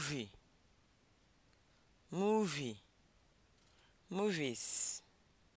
movie movie movies